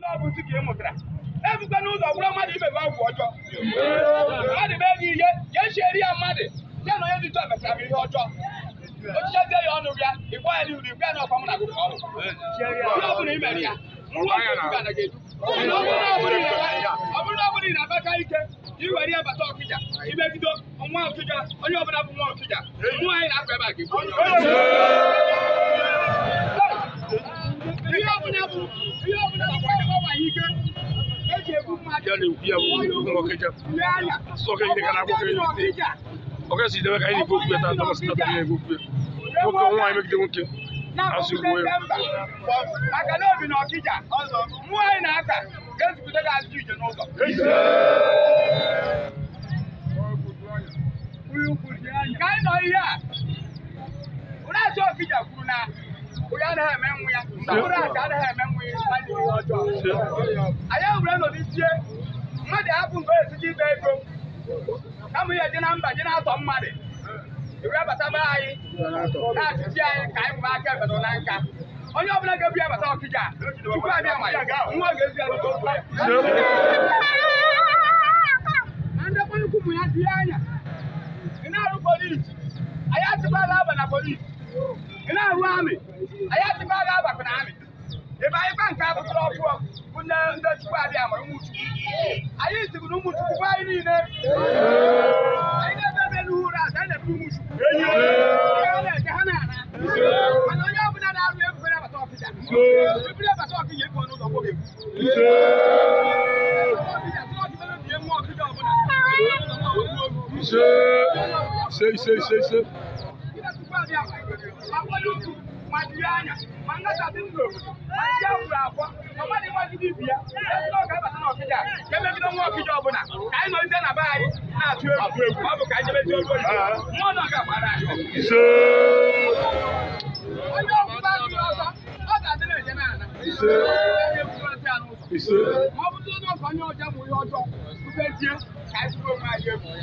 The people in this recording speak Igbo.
n'ọbụzi ka ị mụtara ebukwa n'ụzọ bụrụ mmadụ imebe ọgwụ ọjọọ mmadụ mee gị ihe ka echiere ya mmadụ ya na onye dị tọ mechara ihe ọjọọ ochichezie ya ọnụ ya ịgwa ya ya na mụ na ọrụ ọ ya ọ bụrụ na ọ bụrụ ị na-abaka ike iwere ya bata ọkịja imegido nwa ọkịja onye ọbụla bụ nwa ọkịja mmụọ anyị na-akpa ebe a gị Okija sọka ide ka na-akwụkwọ elite ọka si idebe ka anyị nwoke megide nwoke ya na obi na Okija ka anyị a ụlọaja Okija kwuru na onye ya mgbe ya ọjọọ anyị mmadụ hapụ mgbe ezuji ibe ego kama ihe dị na mba dị na-atọ mmadụ ewebataba anyị na-achịchi anyị ka anyị bụ aka ebedo na nka onye ọbụla ga-ebu ya bata ọkịja chukwu abịa ma ya nwa ga-ezi ya ndekwa ukwu ya dị anya ị na-arụ polisi anyị atụbala aba na polisi ị na-arụ amị anyị atụbala abakụ na amị ebe anyị kwa nke abụtara ọbụọ bụ nne ndị chukwu abịa amara ụmụchukwu anyị zibu na ụmụchukwu bụ anyị niile anyị na-ebe ebe n'ụra azụ anyị na-ebe ụmụchukwu ha na-eje ha na-ana mana onye ọbụla na-arụ ebugo nabata ọkịja ebu nabata ọkịja ịpụ n'ụlọ nwoke Sei, sei, sei, sei. Madiana, Mangata Bingo, Majawa, Mamadi Madibia, Kẹ́mẹ́bí ló ń wọ́n kíjọ ọ̀bùn náà, káyé ló ń tẹ́ nà báyìí náà tí ó rú ọ̀bùn káyé jẹ́ méjì olú ọ̀dọ́. Wọ́n náà kà padà. Ṣé. Ọjọ́ òkú bá ti lọ sọ, ọ̀gá sílẹ̀ ìjẹ́ náà nà. Ṣé. Ṣé. Mọ̀ bí tó náà kàn ní ọjà mú yọ ọjọ́, kú fẹ́ tiẹ́, káyé tó máa yẹ mú. Ẹ